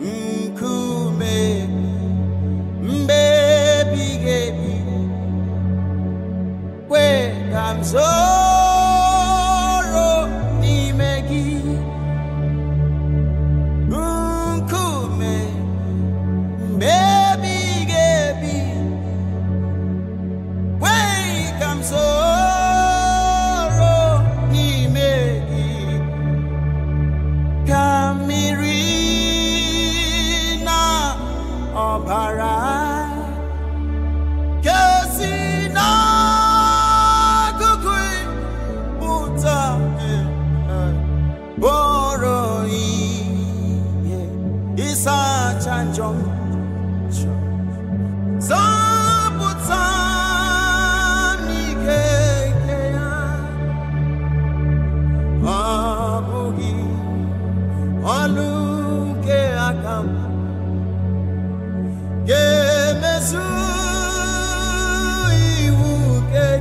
mkube bara kesi na kukui buta boro eh, eh, i eh, isa chanjong zabuta Abugi, Aluke Akam.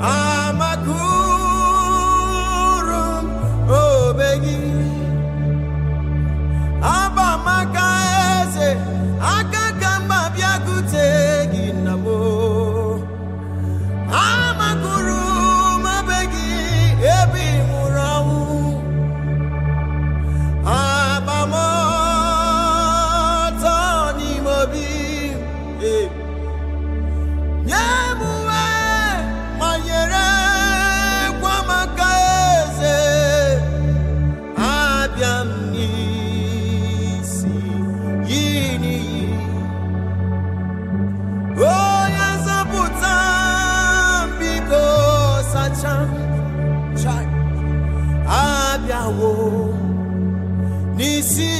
amakuru, oh Obegi cham chai abịawo n'isi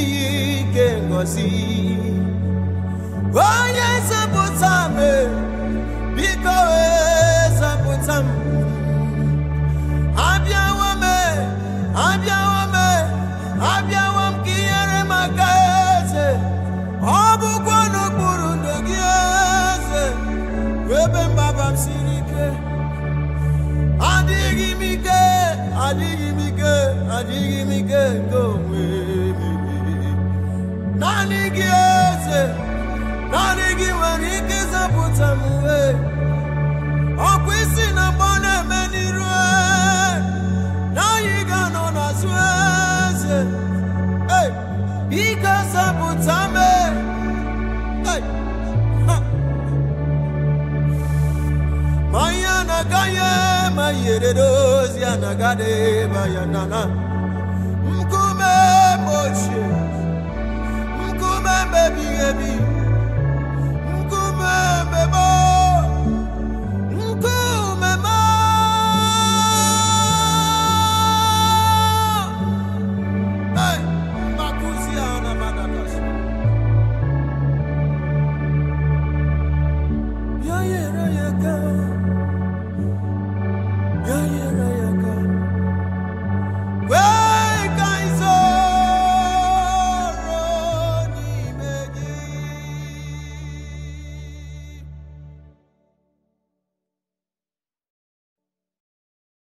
adịghị m ike adịghị m ike nke onwe m naanị na mgbe ọ na-eme n'iru na anyị ga-anọ n'azụ eze biko yere dozi anagade ba bayanana.